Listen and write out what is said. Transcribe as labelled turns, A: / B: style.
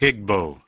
A: Higbo